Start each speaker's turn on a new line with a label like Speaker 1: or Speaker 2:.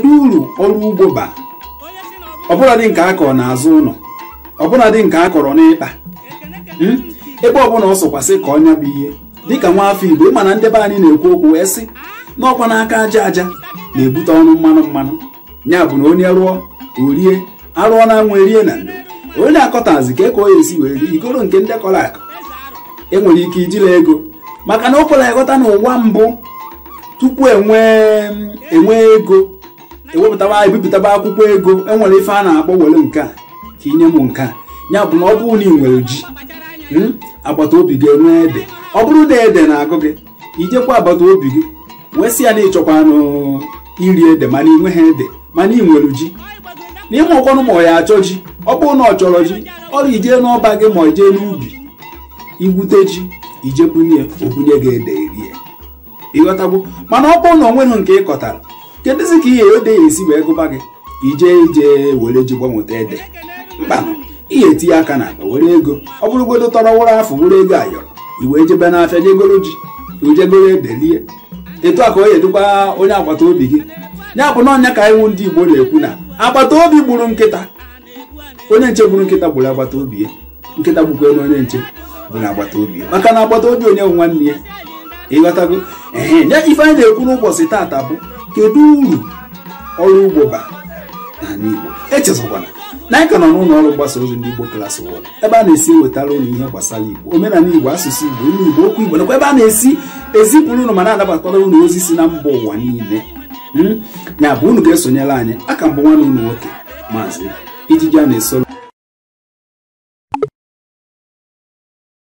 Speaker 1: kedu uru ọrụ ugbo ba ọbụladị nke a kọrọ n'azụ ụlọ ọbụladị nke a kọrọ n'ịkpa hmm? ebe ọbụla ọ sọkwasị ka ọnya bụ ihe dịka nwa afọ igbo ịma na ndị be anyị na-ekwu okwu wee sị na ọkwa n'aka aja aja na-ebute ọnụ mmanụ mmanụ ya bụ na onye rụọ orie arụọ na anwụ erie na ndo onye akọtazi ka eka ka esi wee rie igoro nke ndị kọrọ akụ enwere ike ijila ego maka na o kwere ghọta na ụwa mbụ tupu enwee e ego ewepụtaba ebipụtaba akwụkwọ ego enwere ife a na-akpọ were nke a ka ị nye m nke a ya bụ na ọ bụrụ na ị nwere ji hmm, agbata obi gị enwee ede ọ bụrụ na ede na-agụ gị ijekwa agbata obi gị wee sị ya na ịchọkwanụ iri ede mana ị nweghị ede mana ị nwere ji n'ime ọkwanụ ma ọ ya achọ ji ọ bụrụ na ọ chọrọ ji ọrụ ijee n'ọba gị ma ijee n'ubi igwute ji ijebunye obunye gị ede rie ịghọtagbo mana ọ bụrụ na ọ nweghị nke ị kọtara kedụzi ka ihe odeghị esi wee gụba gị ije ije were ji gbanweta ede mkpa ihe etinye aka na akpa were ego ọ bụrụgodo tọrọ wụrụ afọ were ego ayọrọ iwe jebe n'afịa jegoro ji ojegoro edelie etu a ka o yedukwa onye agbata obi gị ya bụ na ọnya ka iwu ndị igbo na-ekwu na agbata obi gburu nkịta onye nche gburu nkịta gburu agbata obi ya nkịta gbukwe na onye nche bụ agbata obi maka na agbata obi onye nwanne ya ịghọtago ee ya ife anyị na-ekwu n'ụbọchị taata bụ kedu uru ọrụ ugbo bara n'ala Igbo echezọkwana na anyị ka nọ n'ụlọ ọrụ mgbasa ozi ndị Igbo Class World ebe a na-esi ewetara ụlọ ihe gbasara Igbo omenala Igbo asụsụ Igbo ilu Igbo okwu Igbo nakwa ebe a na-esi ezipụrụ ụlọ ma na-anabakwara ụlọ ozi si na mba ụwa niile hmm? ya bụ unu ga-esonyere anyị aka mbụ nwanne ụnụ nwoke maazị ijiji a na-esoro